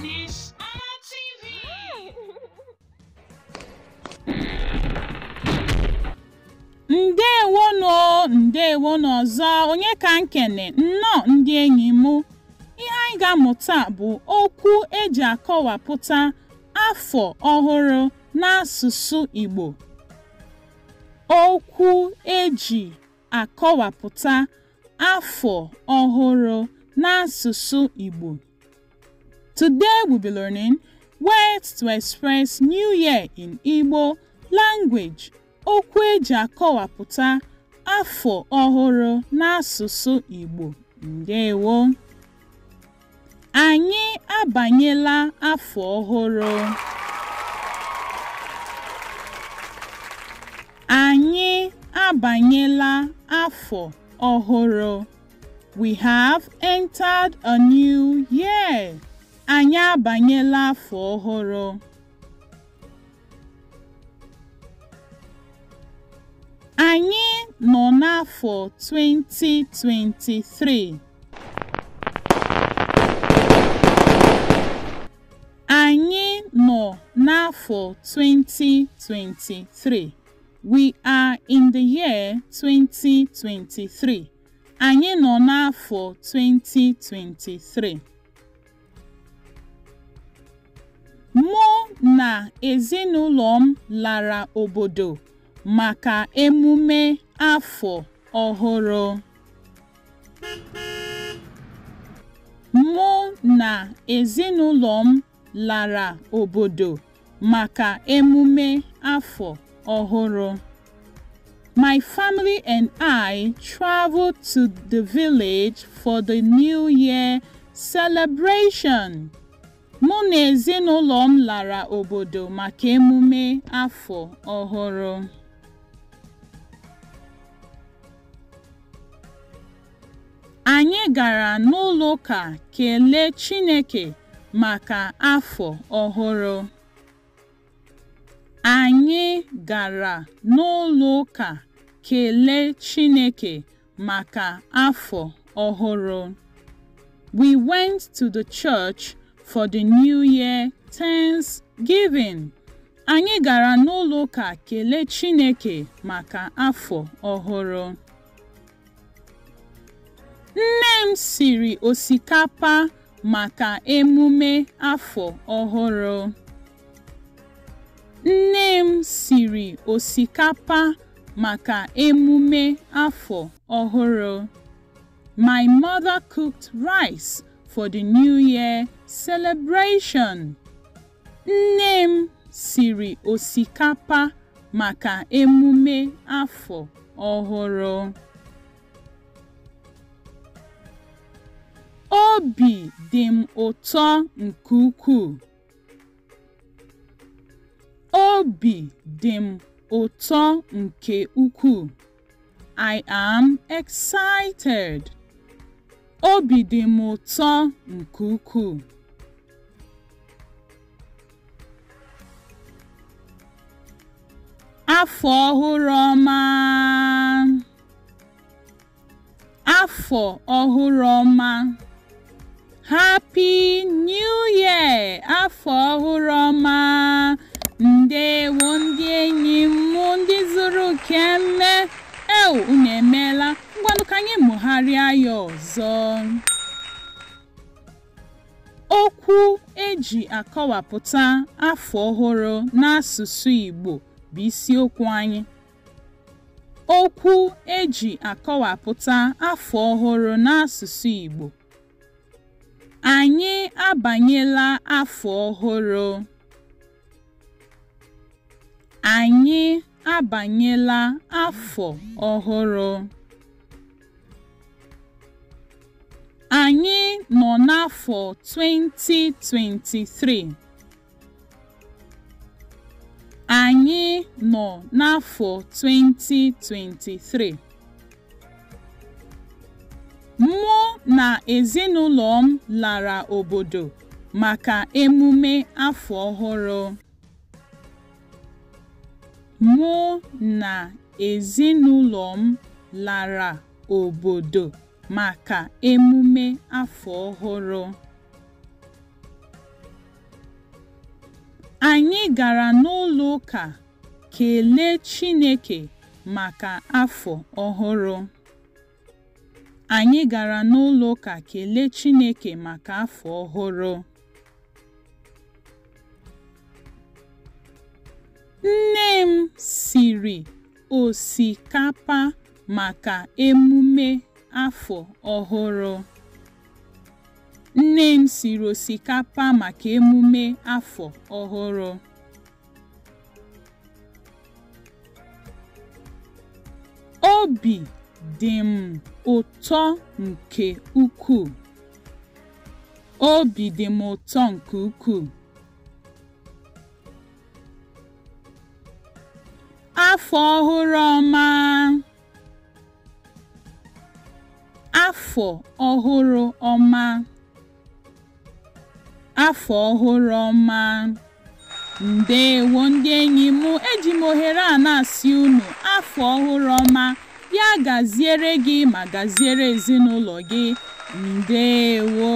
Miss Anna ọzọ onye ka nkene nnọọ ndị enyi m ihe anyị ga-amụta bụ okwu eji akọwapụta afọ ọhụrụ n'asụsụ Igbo okwu eji akọwapụta afọ ọhụrụ n'asụsụ Igbo. Today we be learning words to express New Year in Igbo language. Okwu eji akọwapụta afọ ọhụrụ n'asụsụ Igbo. Ndewo! Anyị abanyela afọ ọhụrụ. Anyị abanyela afọ ọhụrụ. We have entered a new year. Anyị abanyela afọ ọhụrụ. Anyị nọ n'afọ 2023. Anyị nọ n'afọ 2023. We are in the year 2023. Anyị nọ n'afọ 2023. Mụ na ezinụlọ m lara obodo maka emume afọ ọhụrụ. Mụ na ezinụlọ m lara obodo maka emume afọ ọhụrụ. My family and I traveled to the village for the New Year celebration. Mụ na ezinụlọ m lara obodo maka emume afọ ọhụrụ. Anyị gara n'ụlọụka kelee Chineke maka afọ ọhụrụ. Anyị gara n'ụlọ ụka kelee Chineke maka afọ ọhụrụ. We went to the church for the New Year Thanksgiving. Anyị gara n'ụlọ ụka kelee Chineke maka afọ ọhụrụ. Nne m siri osikapa maka emume afọ ọhụrụ. Nne m siri osikapa maka emume afọ ọhụrụ. My mother cooked rice for the New Year celebration. Nne m siri osikapa maka emume afọ ọhụrụ. Obi dị m ụtọ nke ukwuu. Obi dị m ụtọ nke ukwuu. I am excited. Obi dị m ụtọ nke ukwuu. Afọ ọhụrụ ọma! Afọ ọhụrụ ọma! Happy New Year! kele eu unu emeela ngwanụ ka anyị mụgharịa ya ọzọ okwu eji akọwapụta afọ ọhụrụ n'asụsụ Igbo bụ isiokwu anyị okwu eji akọwapụta afọ ọhụrụ n'asụsụ Igbo anyị abanyela afọ ọhụrụ anyị Abanyela afọ ọhụrụ. Anyị nọ n'afọ 2023. Anyị nọ n'afọ 2023. Mụ na ezinụlọ m lara obodo maka emume afọ ọhụrụ. Mụ na ezinụlọ m lara obodo maka emume afọ ọhụrụ. Anyị gara n'ụlọ kelee Chineke afọ ọhụrụ. Anyị gara n'ụlọụka kelee Chineke maka afọ ọhụrụ. osikapa maka emume nne m siri osikapa maka emume afọ ọhụrụ obi dị m ụtọ nke ukwuu obi dị m ụtọ nke ukwuu afọ ọhụrụ ọma afọ ọhụrụ ọma afọ ọhụrụ ọma Ndewo, ndị enyi mụ eji m ohere a na-asị unu afọ ọhụrụ ọma ya gaziere gị ma gaziere ezinụlọ gị Ndewo.